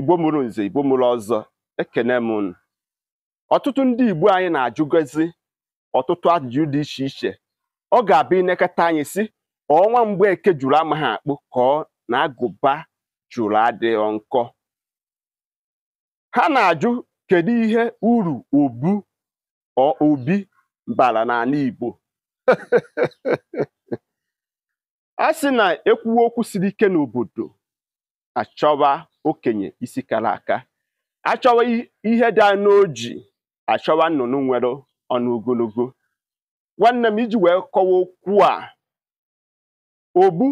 igbo mụrụ nze igbo mụrụ ọzọ ekene m unu ọtụtụ ndị igbo anyị na-ajụgozi ọtụtụ ajụjụ dị iche iche ọ ga-abịa inekọta anyị si ọnwa mgbe eke jụrụ amaghị akpụ ka ọ na agụba jụrụ adịghị nkọ ha na-ajụ kedu ihe uru obu obi bara n'ala igbo a sị na ekwuwe okwu siri ike n'obodo achọwa okenye isi kara aka achọwa ihe dị daa n'oji achọwa nnụnụ nwere ọnụ ogologo nwanne m iji wee kọwa okwu a ogbu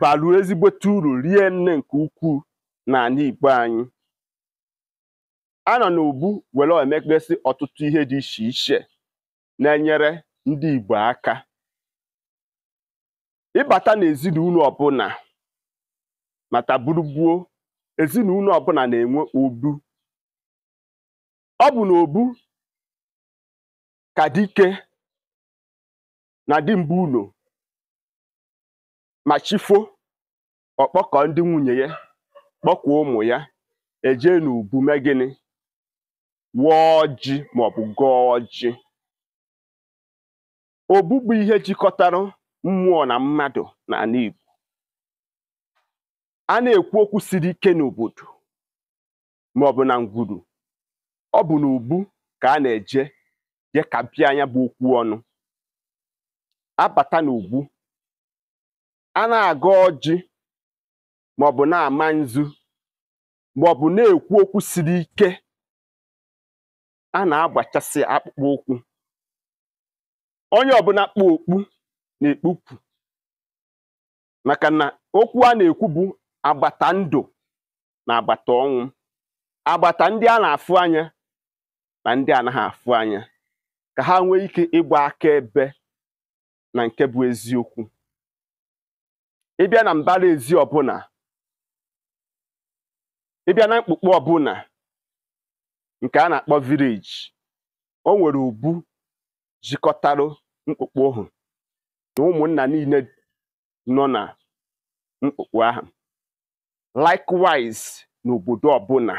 baru ezigbote uru rie nne nke ukwuu n'ala Igbo anyị a nọ n'ogbu were emekpesị ọtụtụ ihe dị iche iche na-enyere ndị Igbo aka ịbata n'ezinụlọ ọbụla mata burugbuo ezinụlọ ọbụla na-enwe obu ọ bụ na obu ka dike na mbụ ụlọ ma chifo ọkpọkọ ndị nwunye ya kpọkwuo ụmụ ya eje n'ubu mee gịnị wụọ ji maọbụ gọọ ji obu bụ ihe jikọtara mmụọ na mmadụ n'ala Igbo a na-ekwu okwu siri ike n'obodo ma ọ bụ na ngwuru ọ bụ n'ubu ka a na-eje je ka anya bụ okwu ọnụ abata n'ugwu a na-agọ ọjị ma ọ bụ na-ama nzu ma ọ bụ na-ekwu okwu siri ike a na-agbachasị akpụkpọ ụkwụ onye ọbụla kpụ okpu na-ekpupụ maka na okwu a na-ekwu bụ agbata ndụ na agbata ọnwụ agbata ndị a na-afụ anya na ndị anaghị afụ anya ka ha nwee ike ịgba aka ebe na nke bụ eziokwu ịbịa na mbara ezi ọbụla ịbịa na ọbụla nke a na-akpọ vileji o nwere ubu jikọtarụ mkpukpe ohu na ụmụnna niile nọ na mkpukpe ahụ likewise n'obodo ọbụla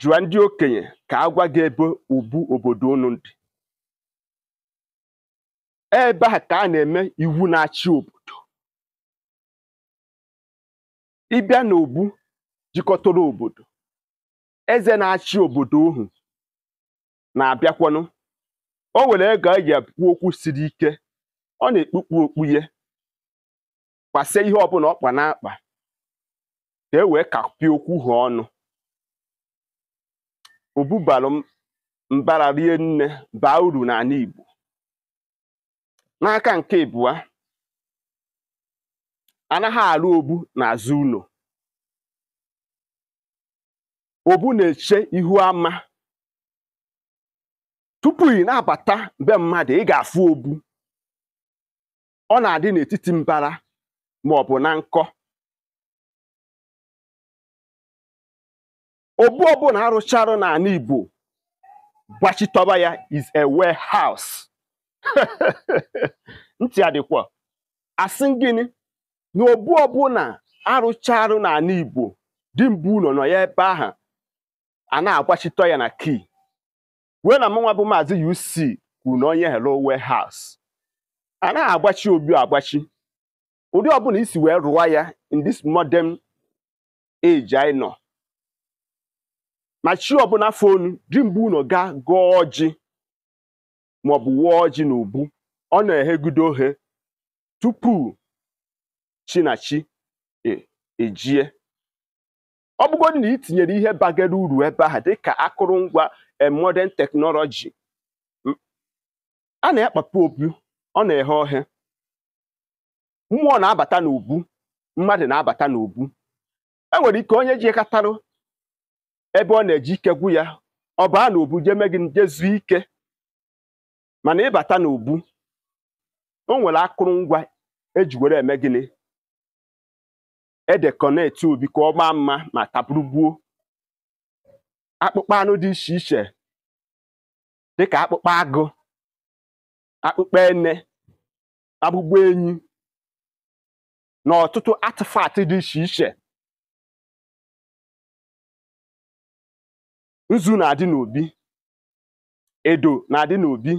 jụọ ndị okenye ka a gwa gị ebe ubu obodo unu dị ebe a ka a na-eme iwu na-achị obodo ịbịa n'obu jikọtara obodo eze na-achị obodo ohu na-abịakwanụ o nwere ego eji ekwu okwu siri ike ọ na-ekpukpu okpu ya kwasie ihe ọbụla ọkpa n'akpa ka e wee kapie okwu ha ọnụ ụbụbalụ mbara rie nne baa uru na n'ala Igbo n'aka nke ibụa anaghị alụ na n'azụ ụlọ obu na-eche ihu ama tupu ị na-abata be mmadụ ị ga-afụ obu ọ na-adị n'etiti mbara ma ọ bụ na nkọ obu ọbụla arụcharụ n'ala Igbo gbachitọba ya is a warehouse ntị adịkwa asị gịnị na obu ọbụla arụcharụ n'ala Igbo dimgbe ụlọ nọ ya ebe ahụ a na-agbachitọ ya na kii wee na mụnwa bụ Maazị UC kwuru na onye hello warehouse a na-agbachi obi agbachi ụdị ọbụla isi wee rụwa ya in this modern age anyị nọ ma chi ọbụla fonu dị mbụ unu gaa gọọ ji maọbụ wụọ ji na ubu ọ na-ehegudo ohe tupu chinachi e, ejie ọ bụgodị na itinyere tinyere ihe bagara uru ebe ahụ dịka akụrụngwa modern teknọlọji a na-akpapụ obi ọ na-eghe ohe mmụọ na-abata n'ubu mmadụ na-abata n'ubu e nwere ike onye ji ekatarụ ebe ọ na-eji ike gwu ya ọ baa n'ubu jeme gị jezu ike mana ịbata n'ubu o nwere akụrụngwa eji were eme gịnị edekọneti obi ka ọ gbaa mma ma taburugbuo akpụkpọ anụ dị iche iche dịka akpụkpọ agụ akpụkpọ ene akpụkpọ enyi na ọtụtụ atịfatị dị iche iche nzu na-adị n'obi edo na-adị n'obi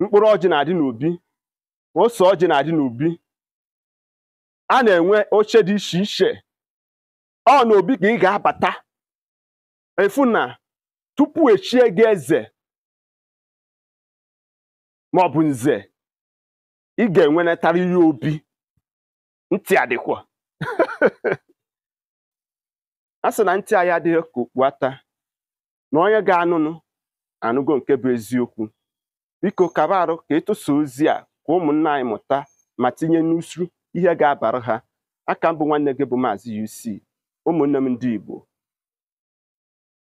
mkpụrụ ọjị na-adị n'obi ose ọjị na-adị n'obi a na-enwe oche dị iche iche ọ na obi ka ị ga-abata efu na tupu echie gị eze maọbụ nze ị ga-enwenetara ihe obi ntị adịkwa a sị na ntị anyị adịghị ka ata na onye ga-anụnụ anụgo nke bụ eziokwu biko kaba arụ ka ịtụsa ozi a ka ụmụnna anyị mụta ma tinye n'usu ihe ga-abara ha aka mbụ nwanne gị bụ maazị UC ụmụnne m ndị Igbo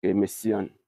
ga